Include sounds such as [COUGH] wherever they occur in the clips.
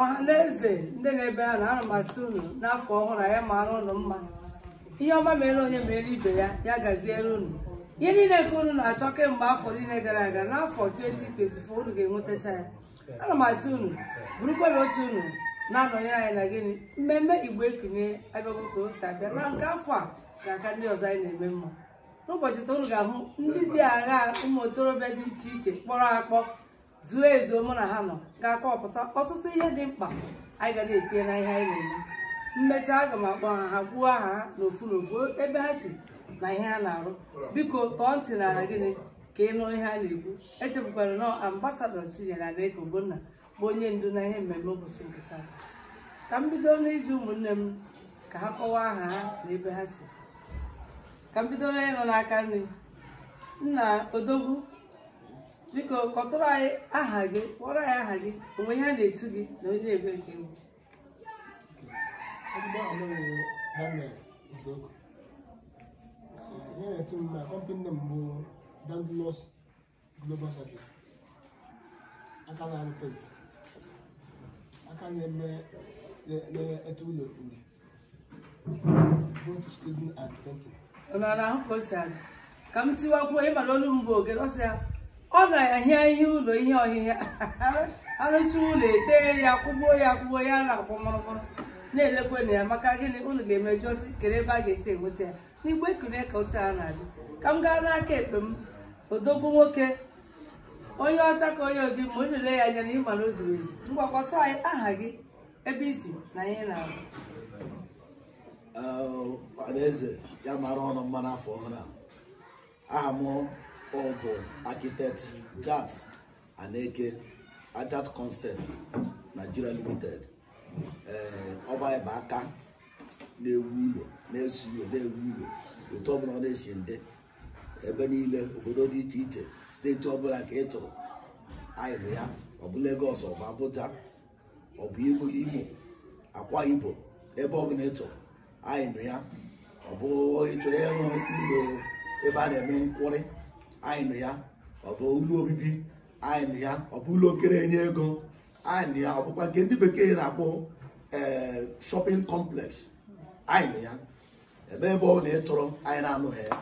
ọha na eze ndị na-ebe a na ana m asị unu n'afọ ọhụrụ anyị mara ụnụ mma ihe ọma mere onye mere ibe ya ya gaziere unu ihe niile nke unu na-achọ kemgbe afọ niile gara aga n'afọ 2024 unu ga-enwetacha ya ana m asị unu bụrụkwara otu unu na-anọnyere anyị na gịnị mmemme igbo ekunye abịago ka o abịa na nke afọ a ga-aka ndị ọzọ anyị na-eme mma n'ụbọchị taa unu ga-ahụ ndị dị agha ụmụ okorobịa dị iche iche kpọrọ akpọ zuo ezu mụ na ha nọ ga-akọpụta ọtụtụ ihe dị mkpa anyị ga na-etinye na ihe anyị na-eme mmecha aga m akpọ ha ha kwuo aha ha n'ofu n'ofu ebe ha si na ihe ha na-arụ biko tọọ ntị n'ala gịnị ka ị ihe a na-ekwu echefukwara nọ ambasadọ Chinyere Adaeze Ogbonna bụ onye ndu na ihe mmemme ụbọchị nkịta tata ka m bido n'iji ụmụnne m ka ha kọwaa aha ha na ebe ha si ka m bido onye nọ n'aka nri nna odogwu biko kọtụrụ anyị aha gị kpọrọ anyị aha gị onwe ihe a na-etu gị na onye na-ebe nke egwu ihe m bụ Dandlos aka na-arụ aka na-eme na-ete ụlọ uri both student and ọ na-ahụ ka o si aga ka m tiwakwuo olu m bụ oge ọ na-ahịa ihe ụlọ ihe ọhịhịa [LAUGHS] arụcha ụlọ ete ya kwụgbuo ya kwụgbuo ya na-akwụ mụrụmụrụ na-elekwe na ya maka gịnị ụlọ ga-emejuosi kere ebe a ga-esi enweta ya n'igbe ekune ka otu a na-adị ka m gaa n'aka ekpe m odogwu nwoke onye ọcha ka onye ojii ma o ya anya na ịma na o zuru ezu mgbakọta anyị aha gị ebe izi na anyị na-abụ a aha ọ bụ architect Jat Aneke Ajat Concept Nigeria Limited ee eh, ọba ịba aka na-ewu ụlọ na esu ụlọ na-ewu ụlọ otu ọbụla ọ na-esi ndị ebe niile obodo dị iche iche steeti ọbụla ka ị tụrụ anyịrụ ya ọ bụ Lagos ọ bụ Igbo Imo Akwa Ibom ebe ọbụla ị chọrọ anyịrụ ya ọ bụ ịchọrọ ịrụ ụlọ ebe a na-eme nkwụrị anyị nụ ya ọ bụ ụlọ obibi anyị nụ ya ọ bụ ụlọ okere enye ego anyị nụ ya ọ bụkwa nke ndị bekee na-akpọ ee eh, shopping complex anyị nụ ya ebe ebe ọ na ịchọrọ anyị na-anụghị ya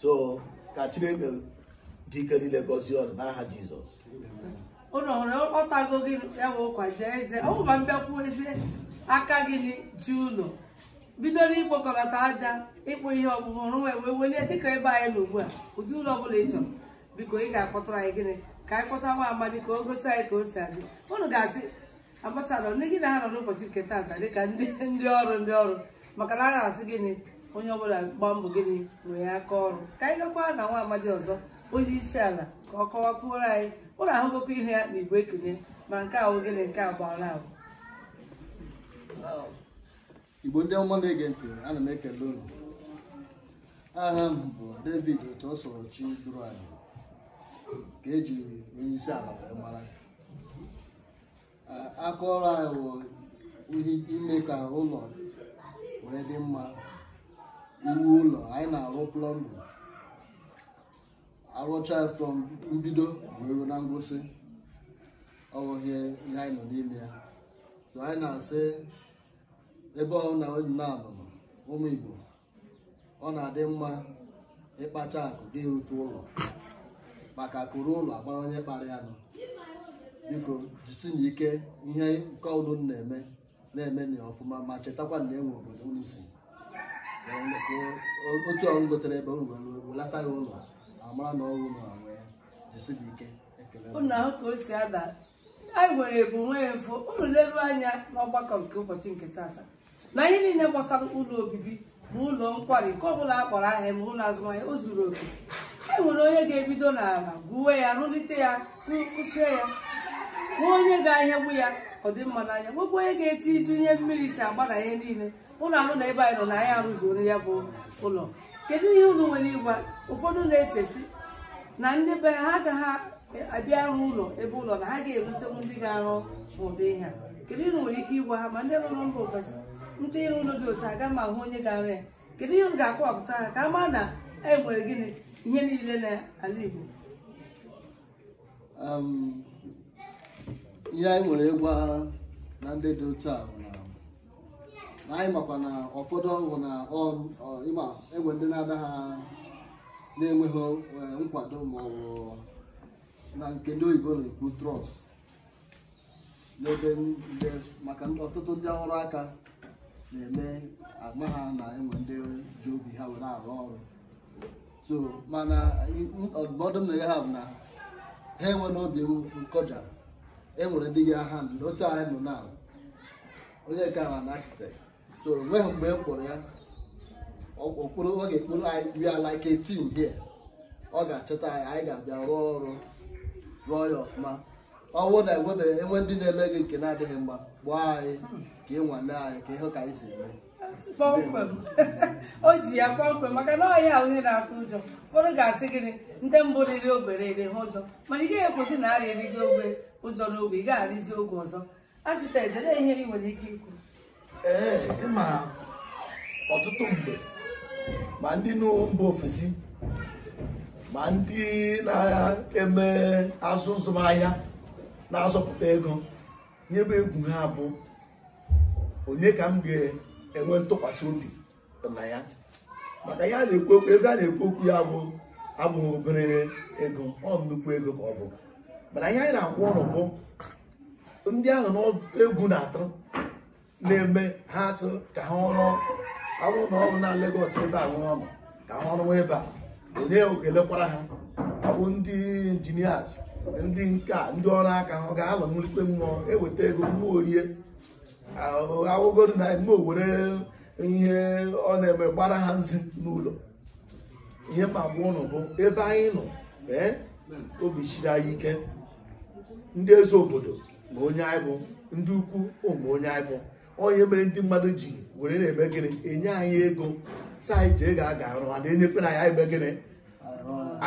so ka Chineke dị ike niile gọzie ọnụ n'aha Jizọs ụlọ nwere ọtago gị ya bụ jee eze ọ bụma mbịakwuo eze aka gị ji ụlọ bidoro ịkpọkọlata aja ịkpụ ihe ọkpụkpụ ọrụ wee wee welie dịka ebe anyị na ugbu a ụdị ụlọ ọbụla ị chọrọ biko ị ga-akpọtara anyị gịnị ka anyị kpọta nwa amadi ka o gosi anyị ka o si adị ụnụ ga-asị ambasadọ ndị gị na ha nọ n'ụbọchị nke taata dịka ndị ọrụ ndị ọrụ maka na a ga-asị gịnị onye ọbụla gbaa mbọ gịnị nwee aka ọrụ ka anyị gakwaa na nwa amadi ọzọ onye isi ala ka ọ kọwakwuoro anyị ụlọ ahụgokwa ihe ya na igwe ekenye ma nke ahụ gịnị nke abụọ na abụ igbo ndị ọma na-ege ntị ana m ekele unu aha m bụ david otu ọ sọrọ chi dụrụ anyị ka eji onye isi ala wee mara aka ọrụ anyị wụ ime ka ụlọ were dị mma iwu ụlọ anyị na-arụ plọmbin arụcha from mbido wee ruo na ngwụsị ọ bụ ihe anyị nọ n'ime ya anyị na-asị ebe ọ na nabụ ụmụ Igbo ọ na-adị mma ịkpacha akụ gị rute ụlọ maka akụrụ ụlọ agbara onye kpara ya nụ biko jisi na ike ihe nke ọnụ na-eme na-eme na ọfụma ma chetakwa na enwe obodo unu si otu ọrụ gotere ebe unu were welata ya ụlọ amara na ọrụ na wee jisi na ike ekele ka o si ada anyị nwere ebumnwee mfụ ụlọ leruo anya n'ọgbakọ nke ụbọchị nke tata na ihe niile gbasara ụlọ obibi ma ụlọ nkwari nke ọbụla a ahịa ma ụlọ azụmahịa o zuru oke e nwere onye ga-ebido n'ala gwuwe ya rụlite ya kụchie ya nwee onye ga-ahịagbu ya ọ dị mma n'anya nwekwa onye ga-eti iju ihe mmiri si agba na ihe niile ụlọ ahụ na ebe anyị nọ na anyị arụzuoro ya bụ ụlọ kedu ihe ụlọ nwere ịgwa ụfọdụ na-echesi na ndị be ha agaghị abịa arụ ụlọ ebe ụlọ na ha ga erutewu ndị ga-arụ ụdị ha kedu ihe nwere ike ịgwa ha ma ndị rụrụ mba ofesi ntụnyere noodles aga m ahụ onye gara ya kedu ihe m ga-akọwapụta ha ka a maa na e nwere gịnị ihe niile n'ala Igbo ihe anyị nwere ịgwa na ndị dị otu a na anyị makwa na ụfọdụ ọgwụ na ịma egwe ndị na-ada ha na-enweghị e, nkwado ma ọ bụ na nke ndị oyibo na-ekwu trọst n'ebe maka ọtụtụ ndị ọrụ aka na-eme ama ha na enwe ndị ji obi ha were arụ ọrụ so mana ọdụmọdụ m na ha bụ na ha enwe n'obi nkọja enwere ndị ga ha nọ otu anyị nọ na onye ka ha na akịtekt so wee mgbe m e kpọrọ ya okporo ọ ga-ekporo anyị we are like a team here ọ ga-achọta anyị anyị ga-abịa rụọ ọrụ rụọ ya ọfụma ọnwụ na enwebe enwe ndị na-eme gị nke na-adịghị mma gbaa anyị ka ị nwane anyị ka ịhụ ka anyị si eme kpọmkwem [LAUGHS] o ji ya kpọmkwem maka na ọhịa onye na-atụ ụjọ ụfọdụ ga-asị gịnị ndị mbụ riri obere ere ha ụjọ mana ị gaghị ekwesị na arịa erigo ogbe ụjọ n'oge ị ga-arịzi oge ọzọ achịta edere ihe ị nwere ike ikwu ee ịma ọtụtụ mgbe ma ndị mba ofesi ma ndị na-eme azụ nzụmahịa na-azọpụta ego nye egwu ha bụ onye ka m ga-enwe ntụkwasị obi na ya maka ya na-ekwu okwu ego a na-ekwu okwu ya bụ abụghị obere ego ọ nnukwu ego ka ọ bụ mana ihe anyị na-akwụ ọrụ bụ ndị ahụ na-egwu na atụ na-eme ha sị ka ha ọrụ awụ na ọrụ na Lagos ebe a nwe ọnụ ka ha ọrụ ebe a onye ogelekwara ha abụ ndị injinias ndị nka ndị ọrụ aka ha ga-alọ n'ikpe mmụọ eweta ego mmụọ orie awụgodo na mmụọ owere ihe ọ na-eme gbara ha nzi n'ụlọ ihe ma gba ụnụ bụ ebe anyị nọ ee obi chiri anyị ike ndị eze obodo ma onye anyị bụ ndị ukwu ụmụ onye anyị bụ onye mere ndị mmadụ ji were na-eme gịnị enye anyị ego si anyị jee ga-aga arụ ma na-enyekwana anyị eme gịnị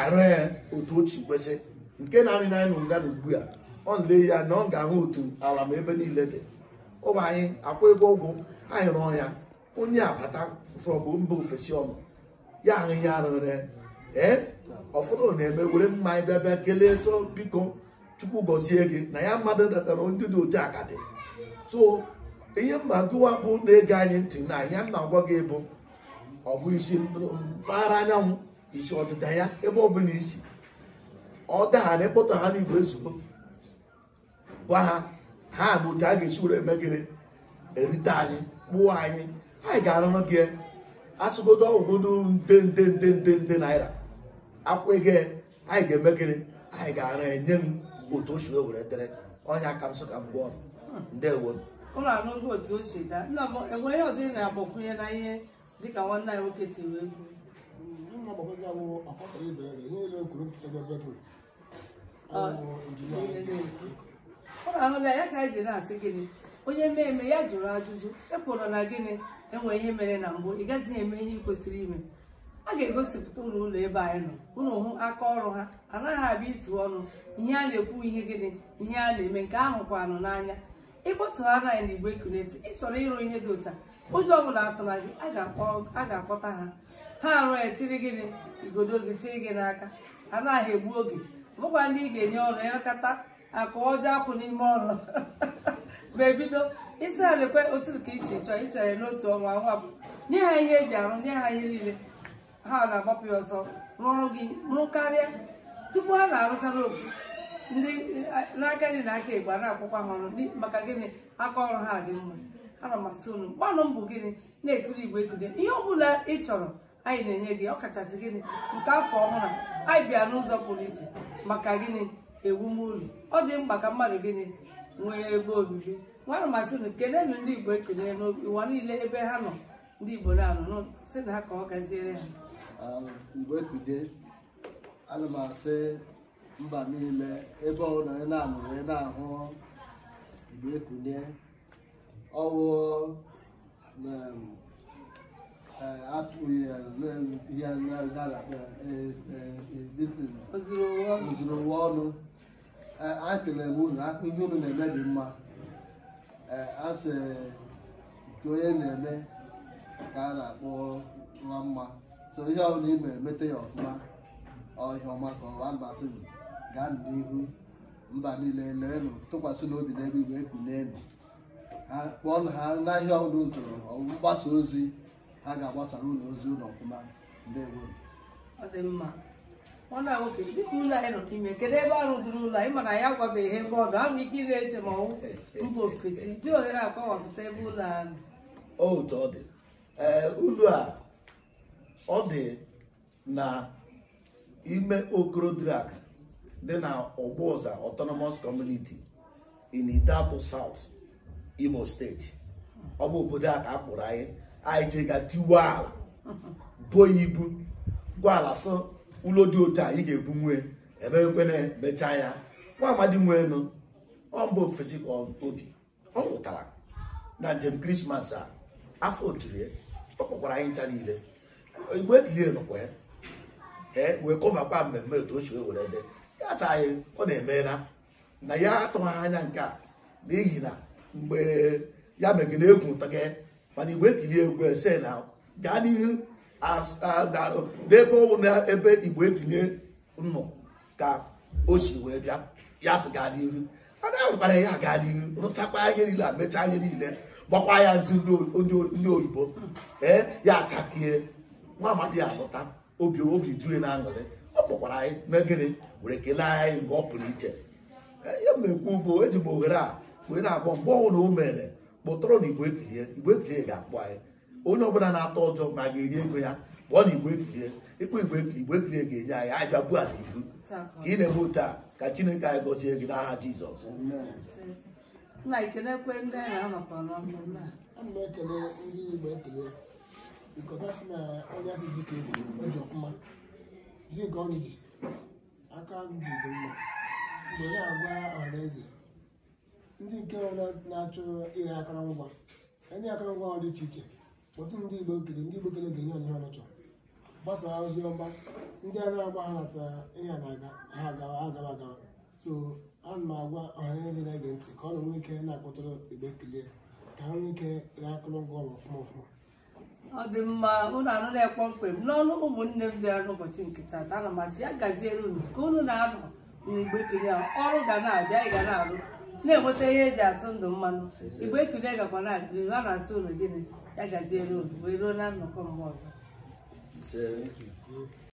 arụ ya otu ochi kwesị nke na-arị na nụ nga ugbu a ọ nle ya na ọ ga-ahụ otu ala ma ebe niile dị ụba anyị akwa ego ụgwụ anyị rụọ ya onye abata from mba ofesi ọnụ ya ahụ ya arụrị ee ọfọdụ na-eme were mma anyị bịa bịa kelee so biko chukwu gọzie gị na ya mmadụ datara ndị dị otu akadị so ihe mba gụwa bụ na-ege anyị ntị na ya m na-agwa gị bụ ọ bụ isi mpaghara anyanwụ isi ọdịda ya ebe ọbụla isi ọ daghara ịkpọtọ ha n'igwe ezugbo gwa ha ha bụ otu a ga-esi were emegere erite anyị kpụọ anyị anyị ga-arụrụ gị e. asụgodo ọgwụgodo nde nde nde nde nde naira akwụ ego anyị ga-emegere anyị ga arụ enye m otu o si were dere ọnya ka m sị ka m gụọ ndewo ụlọ anụghị otu o si daa enweghị ọzọ ị na-agbakwunye na ihe dịka nwanne anyị nwoke si wee kwuo na-agbakọ gị awụ afọsọ ibe ya ihe ole kwuru mpụta gị ụlọ ahụla ya ka anyị ji na-asị gịnị onye mee ya jụrụ ajụjụ ekwuru na gịnị enwe ihe mere na mbụ ị gazighị eme ihe ị kwesịrị ime a ga-egosipụta ụlọ ụlọ ebe anyị nọ ụlọ hụ aka ọrụ ha anaghị abịa ịtụ ọnụ ihe a na-ekwu ihe gịnị ihe a na-eme nke ahụ kwanụ n'anya ịkpọtụ ha naghị na igbe kunesi ị ịrụ ihe dị ụta ụjọ ọ bụla atụla gị a ga-akpọta ha ha arụ echiri gịnị igodo gị chiri gị n'aka anaghị egbu oge bụkwa ndị ị ga-enye ọrụ ịrụkọta akụ ọjọọ apụ n'ime ọrụ [LAUGHS] ma ebido isi ha lekwe otu ka isi chọọ ịchọrọ n'otu ọnwa nwa bụ nye ha ihe eji arụ nye ha ihe niile ha na-agbapụ ya ọsọ rụọrụ gị rụ karịa tupu ha na-arụcha n'ofu ndị n'aka dị na aka igba na-akwụkwa ha ọrụ maka gịnị aka ọrụ ha dị mma ana m asị unu mgbanụ mbụ gịnị na-ekiri igbo ekiri ihe ọ bụla ị chọrọ anyị na-enye gị ọkachasị gịnị nke afọ ọhụrụ anyị bịa n'ụzọ pụrụ iche maka gịnị ewumụlọ ọ dị mkpa ka mmadụ gịnị nwee ebe obibi nwana masị unu kelenu ndị igbo ekene ụwa niile ebe ha nọ ndị igbo na-anọ si na ha ka ọ gaziere ha mgbe ana m asị mba niile ebe ọ ị na-anụrụ na-ahụ igbo ekune ọwụ ihe ozurụwa ọnụ anyị kelere m unu ihe unu na-eme dị mma asị nke onye na-eme ka a na-akpọ nwa mma so ihe ọbụla ime emete ya ọfụma ọhịa ọma ka ọwa masị gaa n'ihu mba niile leenụ tụkwasị n'obi n'ebe igwe kpụọ kpọọ ha n'ahịa ọhụrụ ntụrụ mgbasa ozi ha ga-agbasara ụlọ ozi ụlọ ọfụma nwoke dịka ụlọ anyị nọ ime, kedu ebe arụ duru ụlọ anyị mana ya gwabeghị ebe ọ dụ ahụ ike ire eche ma ọwụ mba ofesi dị ohere agbawapụta ebe ụlọ ahụ otu ọ dị ee ụlọ a ọ dị na ime okorodrak dị na ọgbụụza autonomous community in Idato South Imo steeti ọ bụ obodo a ka a kpụrụ anyị anyị ji ga tiwe ala bo ya ibu gwa ala sọ ụlọ dị otu anyị ga-ebu nwe ebe ekwena mechaa ya nwa amadi nwee nụ mba ofesi obi ọ nwụtara na njem krismas a afọ otiri ọ kpọkwara anyị ncha niile igwe kilie nọkwa ya ee wee kọvakwa mmemme otu ochie were dị ya sa anyị ọ na-emela na ya atụghị anya nke a n'ihi na mgbe ya na egwu ụtọ gị mana igbo ekiri egwu ese na gaa n'ihu n'ebe ọwụ na ebe igbo ekilie nnọ ka o si wee bịa ya si gaa n'ihu adabara ya gaa n'ihu rụchakwa ihe niile a mechaa ihe niile gbakwa ya nzi ndị oyibo ee ya achakie nwa amadi alụta obi obi juru na aṅụrị ọ kpọkwara anyị mee gịnị were kelee anyị nke ọ pụrụ iche ihe m na-ekwu bụ eji m ohere a wee na-akpọ mgbe ọnwụ na o mere kpụtọrọ na igbo ekilie igbo ekilie ga-akpọ anyị onye ọbụla na-atọ ọjọ ma ga-eri ego ya ọ na igwe ekilie ịkpọ igwe ekilie ga-enye anyị anyị bịa buo ala ibu ka ị na-eme ote a ka chineke anyị gọzie gị n'aha jizọs na-ekele ndị na onye asị ka e e aka m mma mgbe ya agwa ọhaneze ndị nke na-achọ ire akụrụngwa ndị akụrụngwa dị iche iche otu ndị igbo kere ndị igbo kere ga-enye onye ọnụchọ gbasaa ozi ọma ndị a na-agba ha natara ihe na-aga ha agawa agawa agawa so ana m agwa ọhaneze na-ege ntị ka ọ nọ nwee ike na-akpọtụrụ igbe ekele ka ha nwee ike ree akụrụngwa ọma ọfụma ọfụma ọ dị mma ụnụ anụ na-ekpọ mkpe n'ọnụ ụmụnne m bịara n'ụbọchị nke taata ana mazi ya gaziere unu ka unu na-anọ n'igbe kilie ọrụ ga na-abịa ị ga na-arụ na-enweta ihe eji atụ ndụ mmanụ igbe ekule gakwa na akịrị ha na-asị ụlọ gịnị ya gazie olu wee ruo na nnọkọ mgbe ọzọ